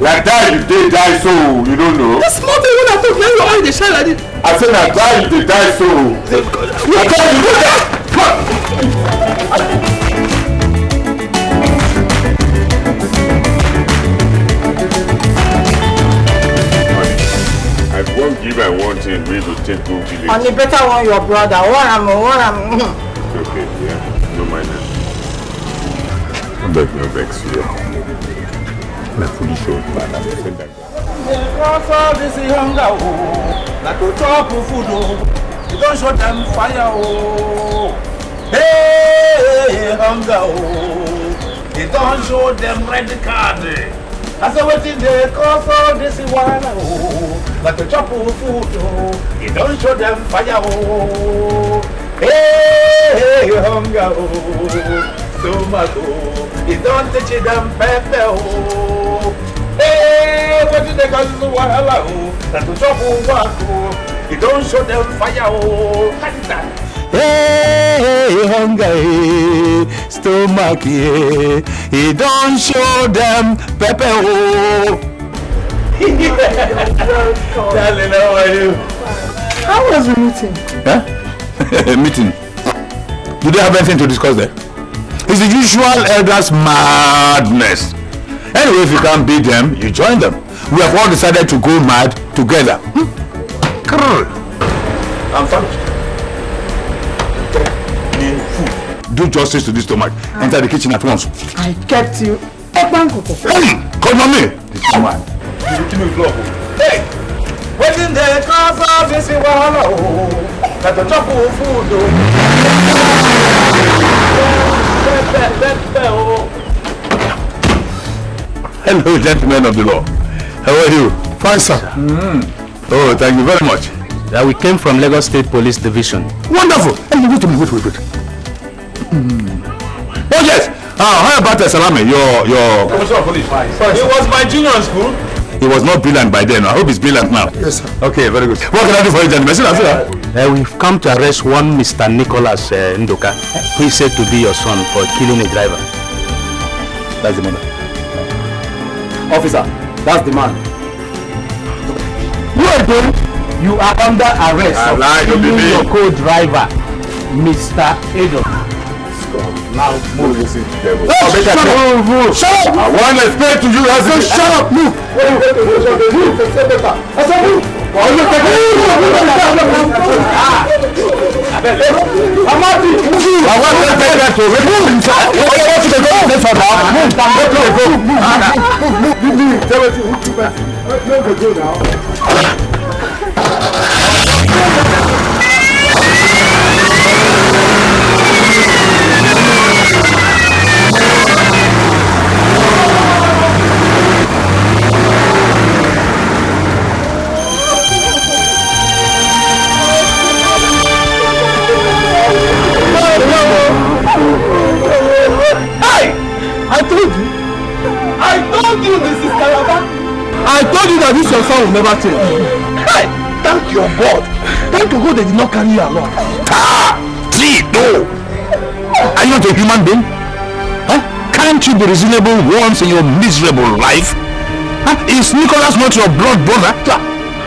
D: like that you dey die so you no know the small thing wey i talk na your eye dey shine like this i say na that you dey die so
A: na
B: that you dey die.
D: give her one thing wey to take go village. on
C: better one your brother What am What am.
D: okay yeah no mind am. no beg no vex you na foolish old man as i say that.
A: Because all this hunger, oh, like to show them fire, Hey, hunger, oh, you don't show them red card. Eh. I say wetin dey cause all this wahala o like to chop food o e don show dem fire o hey hunger So stomach o e don teach them pepper o hey wetin dey cause this wahala o like to chop work o e don show dem fire o.
B: hey, hunger, stomach, he don't show them pepper. Oh.
A: Darling, how are you? How was the meeting? Huh? (laughs) meeting. Do they have anything to discuss there? It's the usual elders' madness. Anyway, if you can't beat them, you join them. We have all decided to go mad together. Hmm? I'm famished. do justice to this stomach ah. enter the kitchen at once. I kept you ẹgbọn kòkò. hey come on me. this woman. kí ló block o. hey wetin dey cause all this wahala o na to chop food o. Hello, gentlemen of the law. How are you? Fine, sir. Mm. Oh, thank you very much. Uh, we came from Lagos State Police Division. Wonderful! Hey, wait a minute, wait, wait, wait. Oh yes. Uh, how about uh, Salame? Your your. Commissioner of Police. He was my junior in school. He was not brilliant by
D: then. I hope he's brilliant now. Yes, sir. Okay, very good. What can I do for you, gentlemen?
A: Uh, we've come to arrest one Mr. Nicholas uh, Ndoka, who is said to be your son for killing a driver. That's the man. Officer, that's the man. You are doing? You are under arrest I for killing your co-driver, Mr. Edo. Now move. this to them. Shut up!
B: Move! Shut up! I want to explain to you as you shut up! Move! Move! move, said move! Amadi, move! I want to take that to remove himself. I want to go this one now. Move! Move! Move! Move! Move! Move! Move! Tell us who you are.
A: Move the go now.
B: told you. I told you, Mrs. Kalaba. I told you that
A: this your son will never change. Hey, thank your God. Thank your God they did not carry you along. Ah, see, no. Are you not a human being? Huh? Can't you be reasonable once in your miserable life? Huh? Is Nicholas not your blood brother?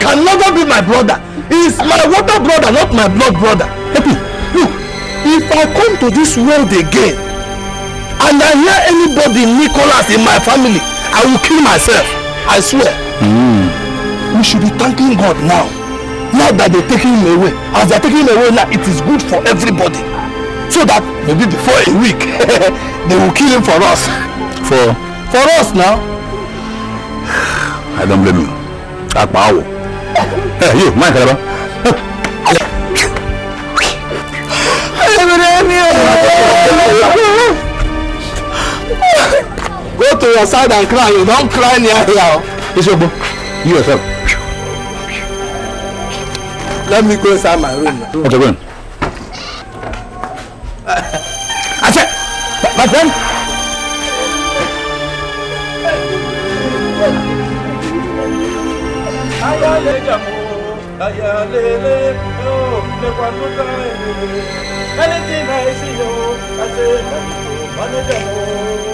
A: Can never be my brother. He's my water brother, not my blood brother. Happy, look, if I come to this world again, and I hear anybody Nicholas in my family, I will kill myself. I swear. Mm. We should be thanking God now. Now that they're taking him away. As they're taking him away now, it is good for everybody. So that maybe before a week, (laughs) they will kill him for us. For? For us now. I don't blame you. Akpa awo. Hey, eh, you, mind, Kalaba. to your side and cry you don't cry near here. your book. you yourself. let me go inside my room. What's going on? Ase, my friend.
B: Ayale jamu, ayale le, yo, le kwanuka
A: ele,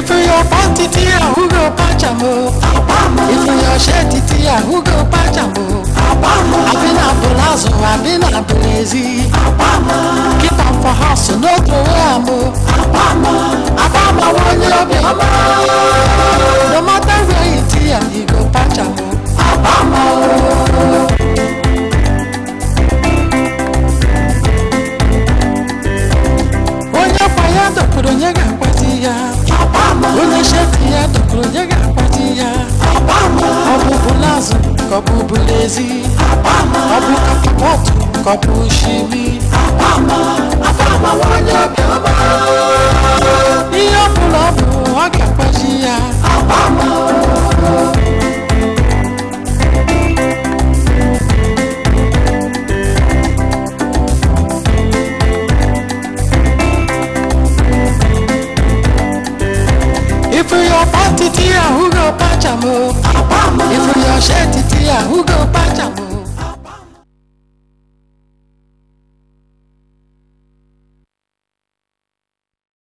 B: If your panty tia who go pajamo oh. Abamo
C: If your shirt tia who go pajamo oh. Abamo Abina bolazo, abina
B: blazy Abamo Keep on for house, no throw amo Abamo Abamo one you be homo oh. No matter where you tia, you go pajamo Abamo
C: Onye fire, don't put on your gun, Uneshetia tukurujaga patia
B: Obama Obubu lazo kobubu lezi Obama Obu kapotu kobu shimi Obama Obama wanya kama Iyo pulobu wage patia Obama ṣe títí àwùjọ pàjá.